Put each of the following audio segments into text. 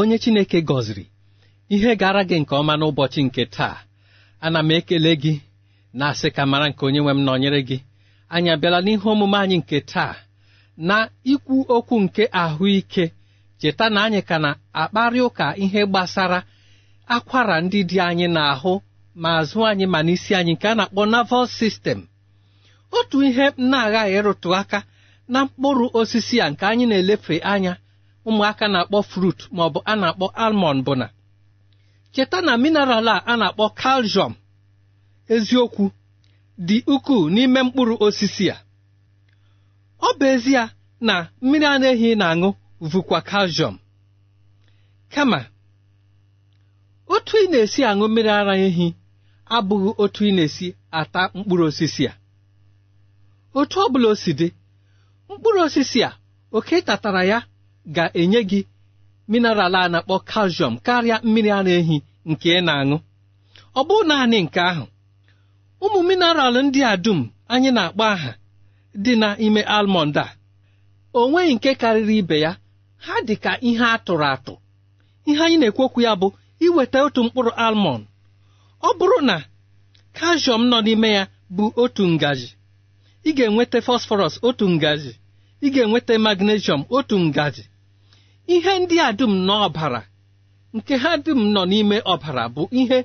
onye Chineke gọziri ihe gara gị nke ọma n'ụbọchị nke taa ana m ekele gị na-asị ka mara nke onye nwe m nọnyere gị anyị abịala n'ihe omume anyị nke taa na ikwu okwu nke ahụike cheta na anyị ka na-akparị ụka ihe gbasara akwara ndị dị anyị n'ahụ ma azụ anyị ma n'isi anyị nke a na-akpọ naval sistem otu ihe m na-aghaghị ịrụtụ aka na mkpụrụ osisi a nke anyị na-elefe anya ụmụaka na-akpọ frut maọbụ a na-akpọ almond bụ na cheta na mineral a na-akpọ kalshọm eziokwu dị ukwuu n'ime mkpụrụ osisi ya. ọ bụ ezie na mmiri anaghị ehi na-aṅụ vụkwa kalshọm kama otu ị na-esi aṅụ mmiri ara ehi abụghị otu ị na-esi ata mkpụrụ osisi a otu ọ bụla o si mkpụrụ osisi a oke tatara ya ga-enye gị mineral a na-akpọ calcium karịa mmiri ara ehi nke ị na-aṅụ ọ bụ naanị nke ahụ ụmụ mineral ndị a dum anyị na-akpọ aha dị n'ime almond a o nweghị nke karịrị ibe ya ha dị ka ihe a tụrụ atụ ihe anyị na ekwokwu ya bụ iweta otu mkpụrụ almọnd ọ bụrụ na calcium nọ n'ime ya bụ otu ngaji ị ga-enweta phosphorus otu ngaji ị ga-enweta magnesium otu ngaji ihe ndị a dum n'ọbara nke ha dum nọ n'ime ọbara bụ ihe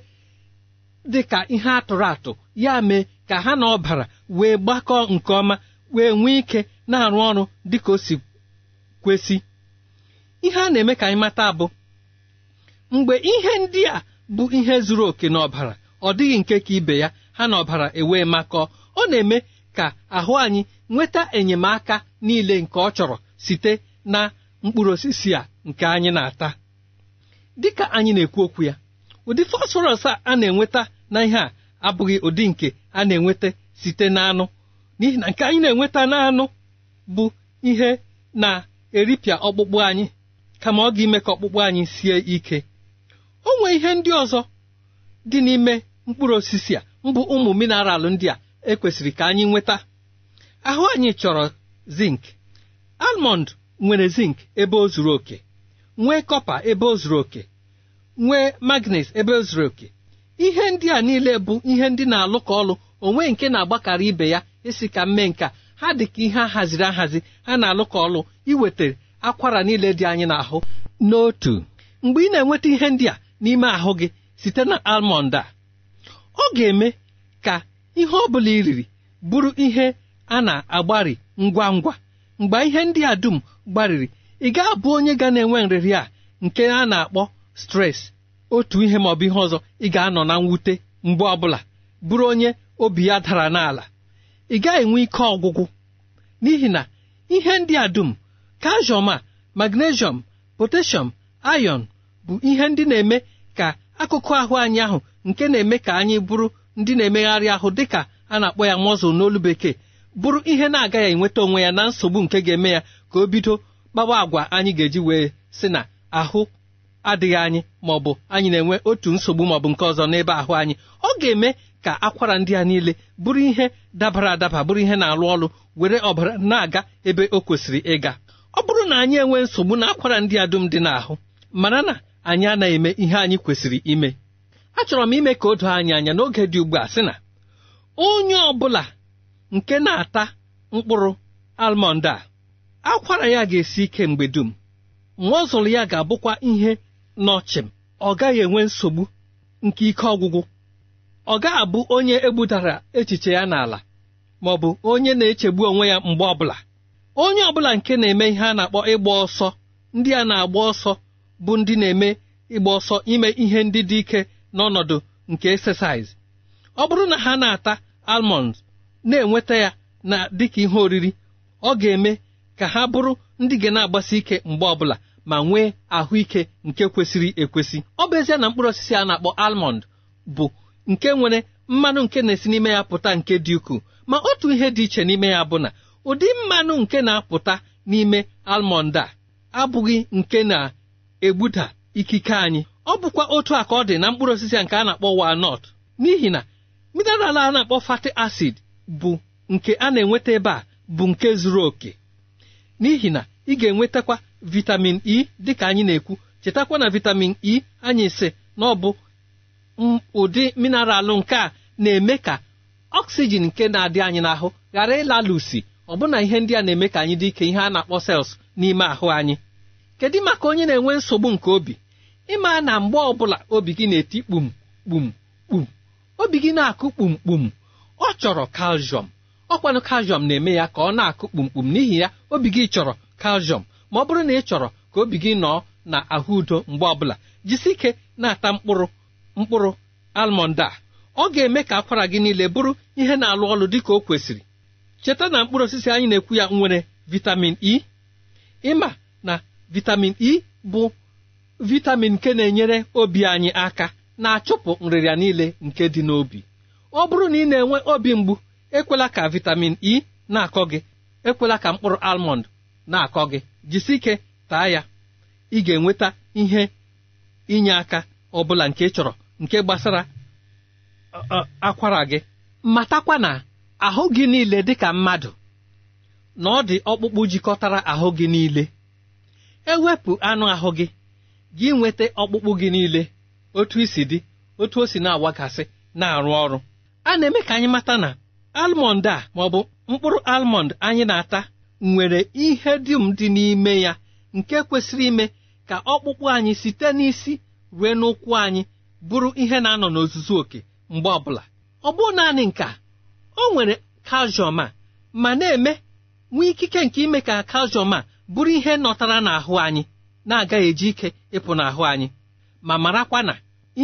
dị ka ihe atụrụ atụ ya mee ka ha na ọbara wee gbakọọ nke ọma wee nwee ike na-arụ ọrụ dị ka o si kwesị ihe a na-eme ka anyị mata bụ mgbe ihe ndị a bụ ihe zuru oke n'ọbara ọ dịghị nke ka ibe ya ha na ọbara ewee makọọ ọ na-eme ka ahụ anyị nweta enyemaka niile nke ọ chọrọ site na mkpụrụ osisi a nke anyị na-ata dịka anyị na-ekwu okwu ya ụdị fosforọs a na-enweta na ihe a abụghị ụdị nke a na-enweta site n'anụ n'ihi na nke anyị na-enweta n'anụ bụ ihe na-eripịa ọkpụkpụ anyị kama ọ ga-ime ka ọkpụkpụ anyị sie ike o nwee ihe ndị ọzọ dị n'ime mkpụrụ osisi a mbụ ụmụ mineral ndị a ekwesịrị ka anyị nweta ahụ anyị chọrọ zinc almond nwere zinc ebe o zuru oke nwee kọpa ebe o zuru oke nwee magnes ebe o zuru oke ihe ndị a niile bụ ihe ndị na-alụ ka ọlụ onwe nke na-agbakarị ibe ya esi ka mme nka ha dị ka ihe ahaziri ahazi ha na-alụ ka ọlụ iweta akwara niile dị anyị n'ahụ n'otu mgbe ị na-enweta ihe ndị a n'ime ahụ gị site na almond a ọ ga-eme ka ihe ọ bụla iriri bụrụ ihe a na-agbari ngwa ngwa mgbe ihe ndị a dum gbarịrị ị ga-abụ onye ga na-enwe nrịrị a nke a na-akpọ stres otu ihe maọbụ ihe ọzọ ị ga-anọ na mwute mgbe ọbụla bụrụ onye obi ya dara n'ala ị gaghị enwe ike ọgwụgwụ n'ihi na ihe ndị a dum kalshọm a magnesium potassium ayọn bụ ihe ndị na-eme ka akụkụ ahụ anyị ahụ nke na-eme ka anyị bụrụ ndị na-emegharị ahụ dịka a na-akpọ ya mọzụl n'olu bekee bụrụ ihe na-agaghị enweta onwe ya na nsogbu nke ga-eme ya ka o bido kpawa agwa anyị ga-eji wee sị na ahụ adịghị anyị ma ọ bụ anyị na-enwe otu nsogbu maọbụ nke ọzọ n'ebe ahụ anyị ọ ga-eme ka akwara ndị a niile bụrụ ihe dabara adaba bụrụ ihe na-alụ ọlụ were ọbara na-aga ebe o kwesịrị ịga ọ bụrụ na anyị enwee nsogbu na akwara ndị a dum dị n'ahụ mara na anyị anaghị eme ihe anyị kwesịrị ime achọrọ m ime ka o doo anyị anya n'oge dị ugbu a sị na onye ọ bụla nke na-ata mkpụrụ almọnd a akwara ya ga-esi ike mgbe dum nwa ọzụlụ ya ga-abụkwa ihe n'ọchịm ọ gaghị enwe nsogbu nke ike ọgwụgwụ ọ gaghị abụ onye egbudara echiche ya n'ala ma ọ bụ onye na-echegbu onwe ya mgbe ọbụla onye ọbụla nke na-eme ihe a na-akpọ ịgba ọsọ ndị a na-agba ọsọ bụ ndị na-eme ịgba ọsọ ime ihe ndị dị ike n'ọnọdụ nke exercise ọ bụrụ na ha na-ata almonds na-enweta ya na dịka ihe oriri ọ ga-eme ka ha bụrụ ndị ga na-agbasi ike mgbe ọbụla ma nwee ahụike nke kwesịrị ekwesị ọ bụ ezie na mkpụrụ osisi a na-akpọ almond bụ nke nwere mmanụ nke na-esi n'ime ya pụta nke dị ukwuu ma otu ihe dị iche n'ime ya bụ na ụdị mmanụ nke na-apụta n'ime almond a abụghị nke na-egbuda ikike anyị ọ bụkwa otu a ka ọ dị na mkpụrụ osisi a nke a na-akpọ walnut n'ihi na mineral a na-akpọ fat acid bụ nke a na-enweta ebe a bụ nke zuru oke n'ihi na ị ga-enwetakwa vitamin E dịka anyị na-ekwu chetakwa na vitamin E anyị sị na ọ bụ ụdị mineralụ nke a na-eme ka oxygen nke na-adị anyị n'ahụ ghara ịlalụsi ọbụna ihe ndị a na-eme ka anyị dị ike ihe a na-akpọ cells n'ime ahụ anyị kedu maka onye na-enwe nsogbu nke obi ịma na mgbe ọbụla obi gị na-eti kpum kpum kpum obi gị na-akụ kpumkpum ọ chọrọ kalshọm ọkwanụ kalshọm na-eme ya ka ọ na-akụ kpumkpum n'ihi ya obi gị chọrọ kalshọm ma ọ bụrụ na ị chọrọ ka obi gị nọọ na ahụ udo mgbe ọbụla jisi na-ata mkpụrụ mkpụrụ almọnd a ọ ga-eme ka akwara gị niile bụrụ ihe na-alụ ọlụ dị ka o kwesịrị cheta na mkpụrụ osisi anyị na-ekwu ya nwere vitamin e ịma na vitamin e bụ vitamin nke na-enyere obi anyị aka na-achụpụ nrịrịa niile nke dị n'obi ọ bụrụ na ị na-enwe obi mgbu ekwela ka vitamin e na-akọ gị ekwela ka mkpụrụ almond na-akọ gị jisi taa ya ị ga-enweta ihe inye aka ọ bụla nke chọrọ nke gbasara akwara gị matakwa na ahụ gị niile dịka mmadụ na ọ dị ọkpụkpụ jikọtara ahụ gị niile ewepụ anụ ahụ gị gị nweta ọkpụkpụ gị niile otu isi dị otu o si na-awagasị na-arụ ọrụ a na-eme ka anyị mata na almọnd a ma ọ bụ mkpụrụ almọnd anyị na-ata nwere ihe dum dị n'ime ya nke kwesịrị ime ka ọkpụkpụ anyị site n'isi ruo n'ụkwụ anyị bụrụ ihe na-anọ n'ozuzu oke mgbe ọbụla ọ bụ naanị nka o nwere kalshọm a ma na-eme nwee ikike nke ime ka kalshọm a bụrụ ihe nọtara n'ahụ anyị na-agaghị eji ike ịpụ n'ahụ anyị ma marakwa na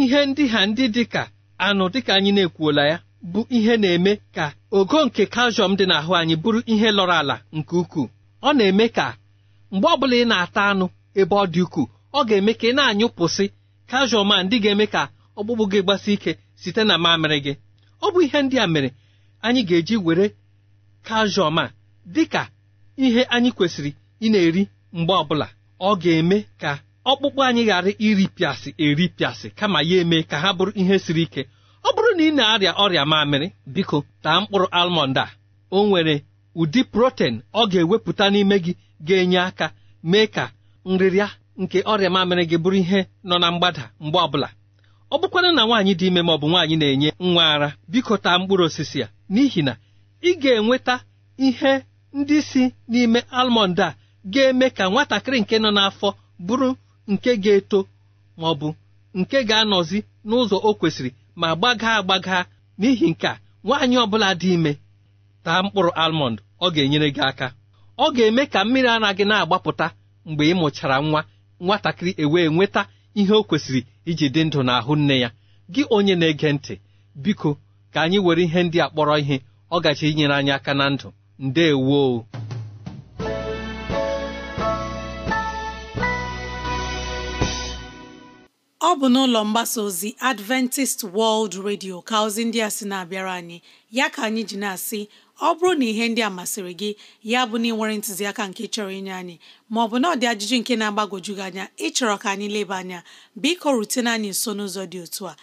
ihe ndị ha ndị dị ka anụ dịka anyị na-ekwuola ya bụ ihe na-eme ka ogo nke kalshọm dị n'ahụ anyị bụrụ ihe lọrọ ala nke ukwuu ọ na-eme ka mgbe ọbụla ị na-ata anụ ebe ọ dị ukwuu ọ ga-eme ka ị na-anyụpụsị kalshọm a ndị ga-eme ka ọkpụkpụ gị gbasi ike site na mamịrị gị ọ bụ ihe ndị a mere anyị ga-eji were kalshọm a dị ka ihe anyị kwesịrị ị na-eri mgbe ọbụla ọ ga-eme ka ọkpụkpụ anyị ghara iripịasị eripịasị kama ya eme ka ha bụrụ ihe siri ike ọ bụrụ na ị na-arịa ọrịa mamịrị biko taa mkpụrụ almọnd a o nwere ụdị protein ọ ga-ewepụta n'ime gị ga-enye aka mee ka nrịrịa nke ọrịa mamịrị gị bụrụ ihe nọ na mgbada mgbe ọbụla ọ bụkwara na nwaanyị dị ime ma ọ nwaanyị na-enye nwa ara biko taa mkpụrụ osisi a n'ihi na ị ga-enweta ihe ndị si n'ime almọnd a ga-eme ka nwatakịrị nke nọ n'afọ bụrụ nke ga-eto ma ọ bụ nke ga-anọzi n'ụzọ o kwesịrị ma gbagaa agbaga n'ihi nke a nwaanyị ọbụla dị ime taa mkpụrụ almọnd ọ ga-enyere gị aka ọ ga-eme ka mmiri anaghị na-agbapụta mgbe ịmụchara nwa nwatakịrị ewee nweta ihe o kwesịrị iji dị ndụ n'ahụ nne ya gị onye na-ege ntị biko ka anyị were ihe ndị a kpọrọ ihe ọ gachi inyere anyị aka na ndụ ndewo ọ bụ n'ụlọ mgbasa ozi Adventist World Radio ka ozi ndị a sị na-abịara anyị ya ka anyị ji na-asị ọ bụrụ na ihe ndị a masịrị gị ya bụ na ị nwere ntụziaka nke chọrọ inye anyị maọbụ na ọ dị ajụjụ nke na agbagoju gị anya ịchọrọ ka anyị leba anya biko rutene anyị nso n'ụzọ dị otu a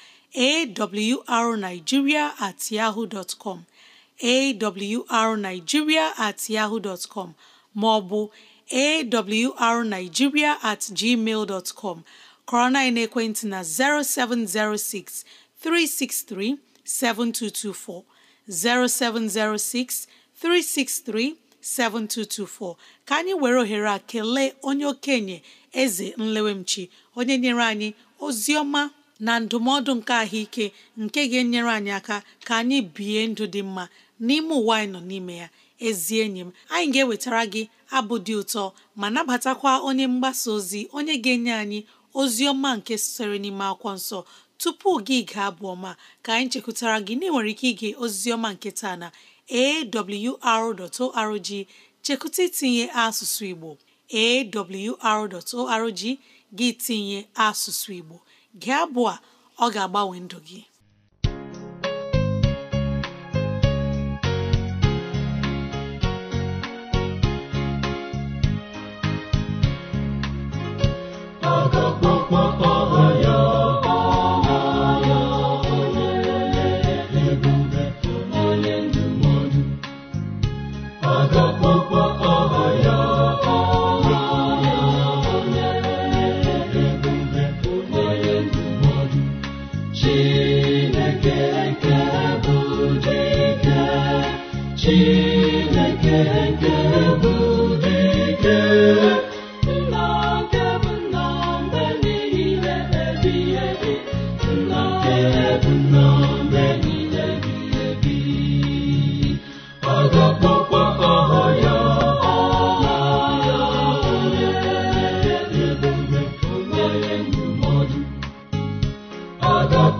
arigiria at yahoo dot com awrnigeria at yahoo dot com maọbụ awrnigeria at gmail dot com kọrọ na ekwentị na 0706 363 7224 0706 363 7224 ka anyị were ohere a kelee onye okenye eze nlewemchi onye nyere anyị ozi ọma na ndụmọdụ nke ahụike nke ga-enyere anyị aka ka anyị bie ndụ dị mma n'ime ụwa anyị nọ n'ime ya ezi enyi m anyị ga-ewetara gị abụ dị ụtọ ma nabatakwa onye mgbasa ozi onye ga-enye anyị ozi ọma nke sitere n'ime akwụkwọ nsọ tupu gị gaa abụ ọma ka anyị chekwutara gị na nwere ike ige ozizi nke taa na AWR.org chekụta itinye asụsụ Igbo AWR.org gị tinye asụsụ Igbo gị abụọ ọ ga-agbanwe ndụ gị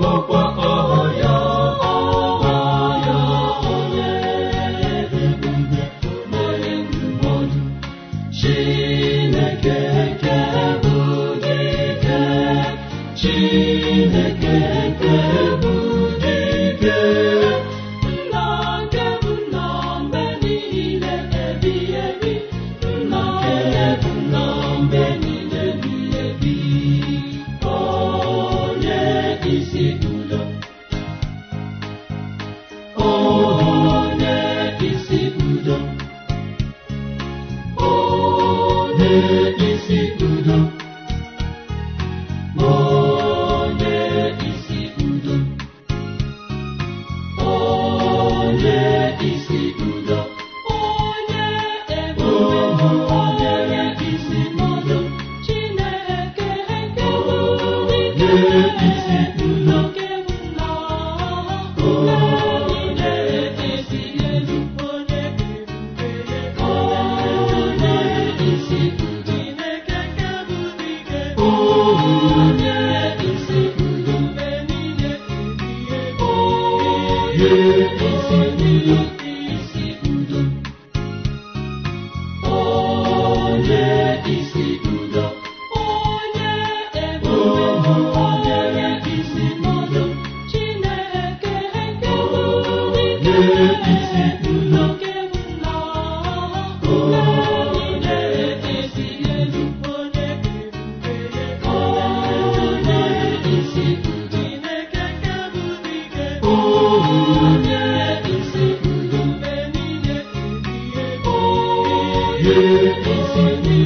ọkpụkpọ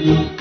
Thank you.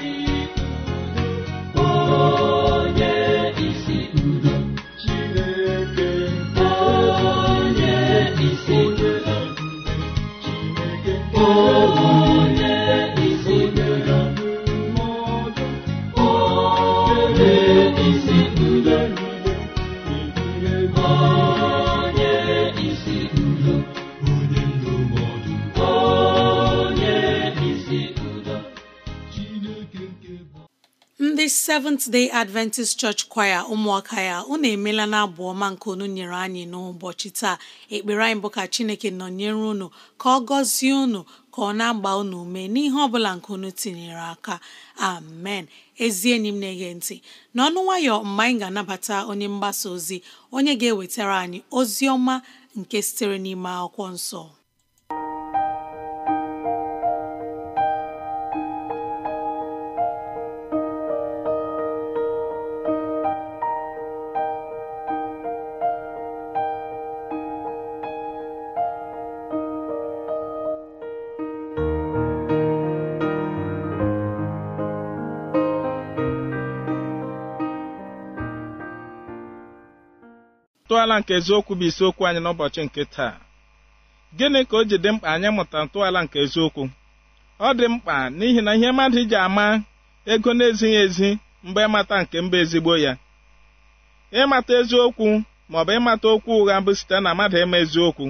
Seventh Day Adventist Church Choir ụmụaka ya unu emela na abụ ọma nke unu nyere anyị n'ụbọchị taa ekpere anyị bụ ka Chineke nọnyere unu ka ọ gọzie unu ka ọ na-agba unu ume n'ihe ọbụla nke unu tinyere aka amen ezi enyi m na-ege ntị n'ọnụ nwayọ mgbe anyị ga-anabata onye mgbasa ozi onye ga-ewetara anyị ozi ọma nke sitere n'ime akwụkwọ nsọ ntọala nke eziokwu bụ isiokwu anyị n'ụbọchị nke taa gịnị ka o ji dị mkpa anyị mụta ntọala nke eziokwu ọ dị mkpa n'ihi na ihe mmadụ ji ama ego na-ezighị ezi mgbe ịmata nke mba ezigbo ya ịmata eziokwu maọbụ ịmata okwu ụgha bụ site na mmadụ ịma eziokwu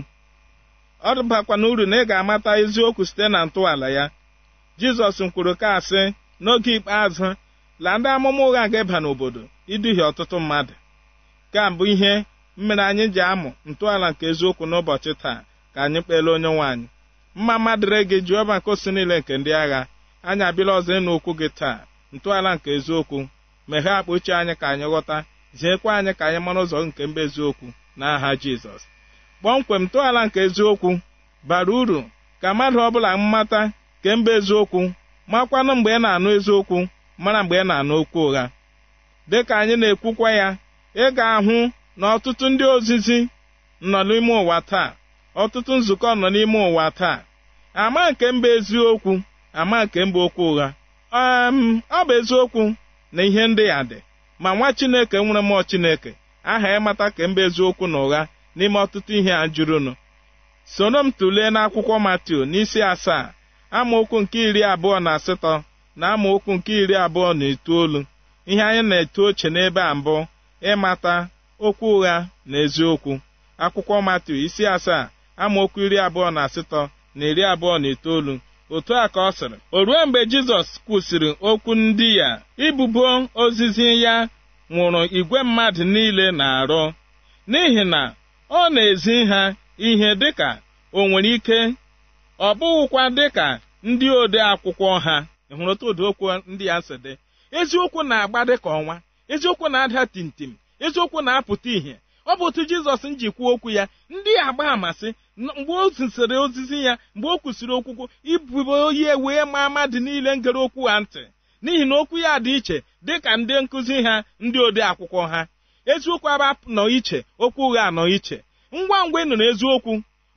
ọ dụbakwa na uru na ị ga-amata eziokwu site na ntọala ya jizọs kwuru ka asị n'oge ikpeazụ la ndị amụma ụgha ga-eba n'obodo iduhie ọtụtụ mmadụ ka mbụ ihe mmere anyị ji amụ ntọala nke eziokwu n'ụbọchị taa ka anyị kpeele onye nwaanyị mma mma dịrị gị Jehova nke osi niile nke ndị agha anyị abịala ọzọ ịnụ okwu gị taa ntọala nke eziokwu meghee akpa uche anyị ka anyị ghọta ziekwa anyị ka anyị mara ụzọ nke mba eziokwu n'aha Jizọs kpọmkwem ntọala nke eziokwu bara uru ka mmadụ ọbụla mmata nke mba eziokwu makwanụ mgbe ị na-anụ eziokwu mara mgbe ị na-anụ okwu ụgha dịka anyị na-ekwukwa ya ị ga-ahụ na ọtụtụ ndị ozizi nọ n'ime ụwa taa ọtụtụ nzukọ nọ n'ime ụwa taa ama nke mba eziokwu ama nke mba okwu ụgha ọ bụ eziokwu na ihe ndị ya dị ma nwa chineke nwere mmụọ chineke aha ịmata ka mba eziokwu na ụgha n'ime ọtụtụ ihe a jụrụnụ soro m tụlee n'akwụkwọ matiu n'isi asaa amaokwu nke iri abụọ na asatọ na amaokwu nke iri abụọ na itoolu ihe anyị na-eto oche n'ebe a mbụ ịmata okwu ụgha na eziokwu akwụkwọ matu isi asaa amaokwu iri abụọ na asatọ na iri abụọ na itoolu otu a ka ọ sịrị o ruo mgbe jizọs kwụsịrị okwu ndị ya ibubo ozizi ya nwụrụ igwe mmadụ niile na-arụ n'ihi na ọ na-ezi ha ihe dịka o nwere ike ọ bụghịkwa dịka ndị ode akwụkwọ ha hụrụ otu ụdị okwu ndị ya si dị eziokwu na-agba dịka ọnwa eziokwu na-ada tim. eziokwu na-apụta ihe ọ bụ otu jizọs kwuo okwu ya ndị agba amasị mgbe o zisịrị ozizi ya mgbe o kwụsịrị okwukwu ibubo oyi e wee maa ama dị niile ngere okwu ha ntị n'ihi na okwu ya dị iche dị ka ndị nkụzi ha ndị ode akwụkwọ ha eziokwu aba nọ iche okwu ụgha anọ iche ngwa ngwa ị nụrụ eziokwu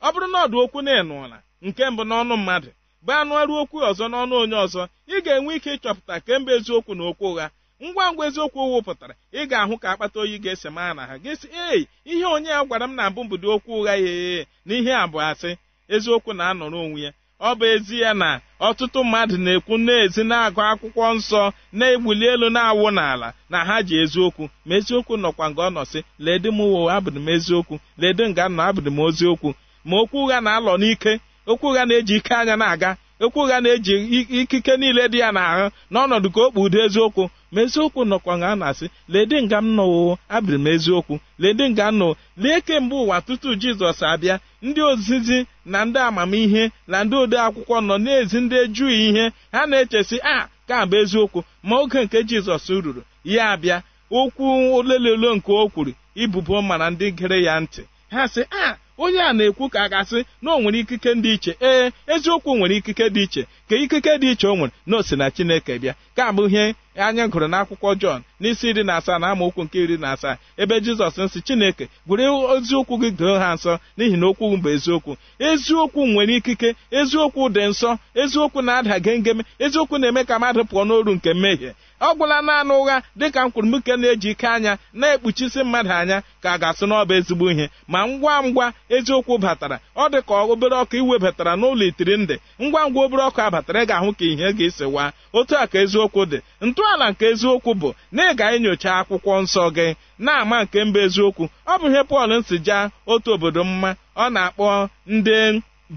ọ bụrụ na ọdụ okwu na ịnụọla nke mbụ n'ọnụ mmadụ bụ anụ ọrụ okwu ọzọ n'ọnụ onye ọzọ ị ga-enwe ike ịchọpụta kemgbe eziokwu na okwu ụgha ngwa ngwa eziokwu owu pụtara ị ga-ahụ ka akpata oyi ga-ese maa na ha ga si ei ihe onye ya gwara m na abụ mbido okwu ụgha ya ee na ihe abụ asị eziokwu na-anọrọ onwe ya ọ bụ ezi ya na ọtụtụ mmadụ na-ekwu na-ezi na-agụ akwụkwọ nsọ na-egbuli elu na-awụ n'ala na ha ji eziokwu ma eziokwu nọkwa nga ọ nọsị ledị m wo abụdị m eziokwu ledị nga nọ abụdị m oziokwu ma okwu ụgha na-alọ n'ike okwu ụgha na-eji ike anya na-aga okwu ụgha na-eji ikike niile dị ya n'ahụ n'ọnọdụ ka o kpu udo eziokwu ma eziokwu nọkwa nga a na-asị ledị nga m nọwo abịrị m eziokwu ledị nga nọ lee kemgbe ụwa tutu jizọs abịa ndị ozizi na ndị amamihe na ndị ode akwụkwọ nọ na-ezi ndị ejughị ihe ha na-echesi a ka bụ eziokwu ma oge nke jizọs ruru ya abịa okwu olelelo nke o kwuru ibubo mana ndị gere ya ntị ha sị a onye a na-ekwu ka a ga-asị na o nwere ikike dị iche ee eziokwu nwere ikike dị iche ka ikike dị iche o nwere na o si na chineke bịa ka abụ ihe anyị gụrụ akwụkwọ Jọn n'isi iri na asaa na amaokwu nke iri na asaa ebe Jizọs nsị Chineke gwere eziokwu gị doo ha nsọ n'ihi na okwu bụ eziokwu eziokwu nwere ikike eziokwu dị nsọ eziokwu na-ada gengeme eziokwu na-eme ka mmadụ pụọ n'oru nke mmehie ọ gwụla naanị ụgha dịka mkpụrụmke na-eji ike anya na-ekpuchisi mmadụ anya ka a ga-asụ n'ọba ezigbo ihe ma ngwa ngwa eziokwu batara ọ dị ka obere ọkụ iwebatara n'ụlọ itiri ndị ngwa ngwa obere ọkụ abatara ị ga-ahụ ka ihe ga-esi waa otu a ka eziokwu dị ntọala nke eziokwu bụ na ị ga-enyocha akwụkwọ nsọ gị na-ama nke mba eziokwu ọ bụ ihe Pọl nsi jaa otu obodo mma ọ na-akpọ ndị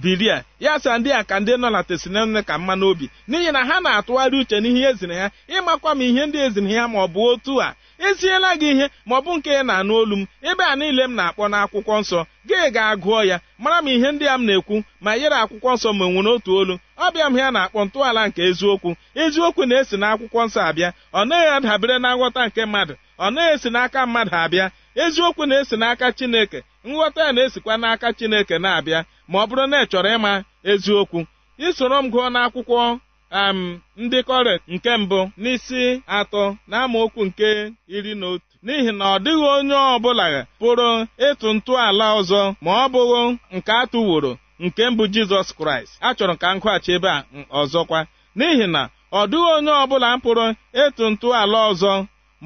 diria ya sa ndị a ka ndị nọ na tesinene ka mma n'obi n'ihi na ha na-atụgharị uche n'ihe eziri ha ịmakwa m ihe ndị eziri ha ma ọ bụ otu a esiela gị ihe ma ọ bụ nke na-anụ olu m ebe a niile m na-akpọ n'akwụkwọ nsọ gị ga-agụọ ya mara m ihe ndị a m na-ekwu ma yere akwụkwọ nsọ ma enwe n'otu olu ọbịa m ya na-akpọ ntọala nke eziokwu eziokwu na-esi akwụkwọ nsọ abịa ọ naghị adabere na nghọta nke mmadụ ọ naghị esi n'aka mmadụ abịa eziokwu na-esi n'aka chineke nghọta ya na-esikwa n'aka chineke na-abịa ma ọ bụrụ na ị chọrọ ịma eziokwu isoro m gụọ n'akwụkwọ am ndị kọret nke mbụ n'isi atọ na nke iri na otu n'ihi na ọ dịghị onye ọbụla pụrụ ịtụ ntọala ọzọ ma ọ bụghị nke atụworo nke mbụ jizọs kraịst achọrọ ka m gụghachi ebe a ọzọkwa n'ihi na ọ dịghị onye ọbụla pụrụ ịtụ ntọala ọzọ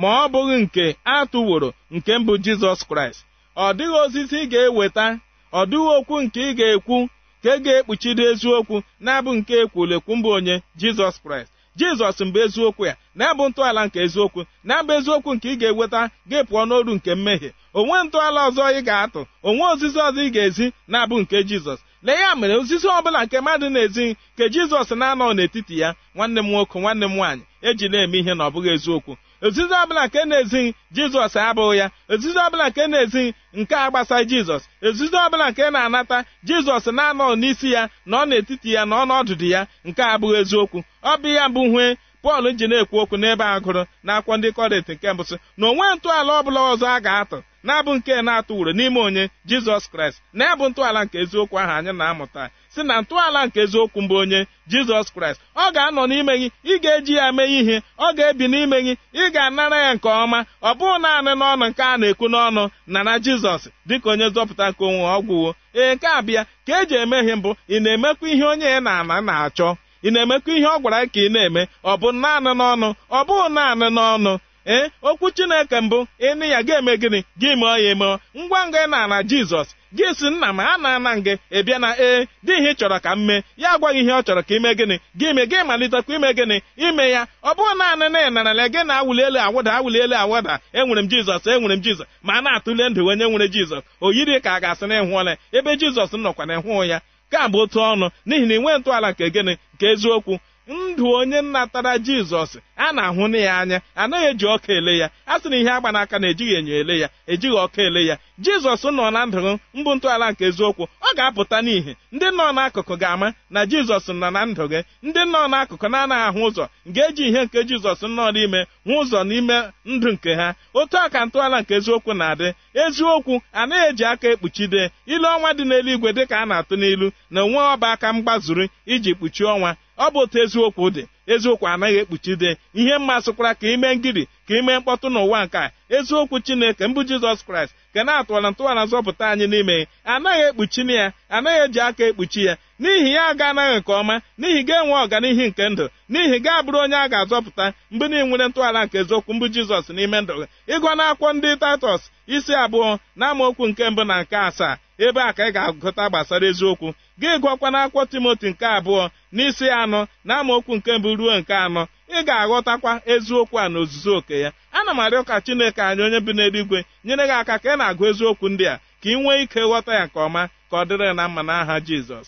ma ọ bụghị nke atụworo nke mbụ jizọs kraịst ọ dịghị ozizi ị ga-eweta ọ dịghị okwu nke ị ga-ekwu ka ị ga-ekpuchiri eziokwu na-abụ nke ekwulekwu mbụ onye jizọs kraịst jizọs mbụ eziokwu ya na-abụ ntọala nke eziokwu na-abụ eziokwu nke ị ga-eweta ga pụọ n'oru nke mmehie onwe ntọala ọzọ ị ga-atụ onwe ozizi ọzọ ị ga-ezi na-abụ nke jizọs lee ya mere ozizi ọ bụla nke mmadụ na-ezi nke jizọs na-anọ n'etiti ya nwanne m nwoke nwanne m nwaanyị e ji na-eme ihe na ọ bụghị eziokwu ozizi ọbụla nke na-ezighị jizọs abụghị ya ozizi ọbụla nke na-ezighị nke a gbasaghị jizọs ozizi ọbụla nke na-anata jizọs na anọ n'isi ya na ọ n'etiti ya na ọ nọdụdụ ya nke abụghị eziokwu ọ bụ ya bụ hue pọl ji na-ekwu okwu n'ebe agụrụ na akwọ ndị kọrịntị nke mbụsị na onwe ntọala ọbụla ọzọ a ga-atụ na-abụ nke na-atụ uru n'ime onye jizọs kraịst na ebụ ntọala nke eziokwu ahụ anyị na-amụta si na ntọala nke eziokwu mbụ onye jizọs kraịst ọ ga-anọ n'ime gị ị ga-eji ya mee ihe ọ ga-ebi n'ime gị ị ga-anara ya nke ọma ọ bụghị naanị n'ọnụ nke a na-ekwu n'ọnụ na na jizọs dịka onye zọpụta nke onwe ọgwụwo ee nke abịa ka eji emeghe mbụ ị na-emekwa ihe onye na-ana na-achọ ị na-emekwa ihe ọ gwara ka ị na-eme ọ bụ naanị n'ọnụ ọ bụghị naanị n'ọnụ ee eh, okwu chineke mbụ ịnị ya ga-eme gịnị gị mụọ ya emụọ ngwa ngwa ị na-ana jizọs gị si nna m a na-ana gị ị na ee eh, dị ihe ị chọrọ ka m mee ya agwaghị ihe ọ chọrọ ka ime gịnị gị me gị malitekwa ime gịnị ime ya ọ bụrụ naanị na ị gị na awụli elu awụda awụli elu awụda enwere m jizọs enwere m jizọs ma a na-atụle ndụ onye nwere jizọs o yiri ka a ga-asị na ịhụọla ebe jizọs nọkwa na ịhụụ ya ka bụ otu ọnụ n'ihi na ị nwee ntọala nke gịnị nke eziokwu ndụ onye natara jizọs a na-ahụ na ya anya anaghị eji ọka ele ya a sị na ihe agba n'aka na ejighị enyo ele ya ejighị ọka ele ya jizọs nọ na ndụ mbụ ntọala nke eziokwu ọ ga-apụta n'ihi ndị nọ n'akụkụ ga-ama na jizọs nọ na ndụ gị ndị nọ n'akụkụ na-anaghị ahụ ụzọ ga-eji ihe nke jizọs nọ n'ime hụ ụzọ n'ime ndụ nke ha otu ọka ka ntọala nke eziokwu na-adị eziokwu anaghị eji aka ekpuchide ilu ọnwa dị n'eluigwe dị ka a na-atụ n'ilu na onwe ọba aka mgbazuru iji kpuchie ọnwa ọ bụ otu eziokwu dị eziokwu anaghị ekpuchide ihe mmasị sụkwara ka ime ngiri ka ime mkpọtụ n'ụwa nke a eziokwu chineke mbụ jizọs kraịst ke na-atụwara ntụwara zọpụta anyị n'ime anaghị na ya anaghị eji aka ekpuchi ya n'ihi ya aga anaghị nke ọma n'ihi gị enwe ọganihu nke ndụ n'ihi gị abụrụ onye a ga-azọpụta mgbe na nwere ntụgharị nke eziokwu mbụ jizọs n'ime ndụ gị ịgụ na ndị taịtọs isi abụọ na nke mbụ na nke asaa ebe a ka ị ga-agụta gbasara eziokwu gị gụọkwa akwụkwọ timoti nke abụọ n'isi anọ na amaokwu nke mbụ ruo nke anọ ị ga-aghọtakwa eziokwu a n'ozuzu oke ya ana m arịọ ka chineke anyị onye bi n'eluigwe nyere gị aka ka ị na-agụ eziokwu ndị a ka ị nwee ike ghọta ya nke ọma ka ọ dịrị na mma n'aha jizọs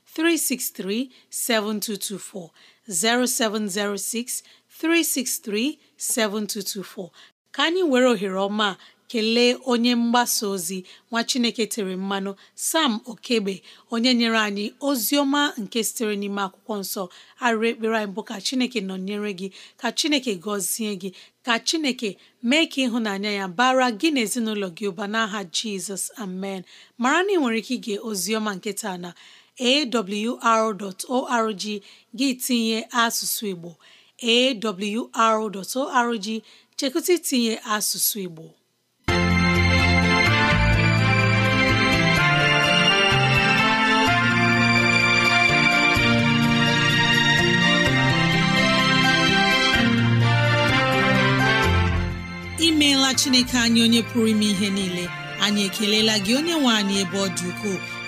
363 7224 0706 363 7224 ka anyị were ohere ọma kelee onye mgbasa ozi nwa Chineke tere mmanụ Sam Okegbe onye nyere anyị ozi ọma nke sitere n'ime akwụkwọ nsọ arụ ekpere anyị bụ ka Chineke nọnyere gị ka Chineke gọzie gị ka Chineke mee ka ịhụnanya ya bara gị na ezinụlọ gị ụba n'aha Jizọs amen mara na ị nwere ike ige ozi ọma na awr.org gị tinye asụsụ Igbo awr.org chekụta itinye asụsụ Igbo imeela Chineke anyị onye pụrụ ime ihe niile anyị ekelela gị onye nwe anyị ebe ọ dị ukwuu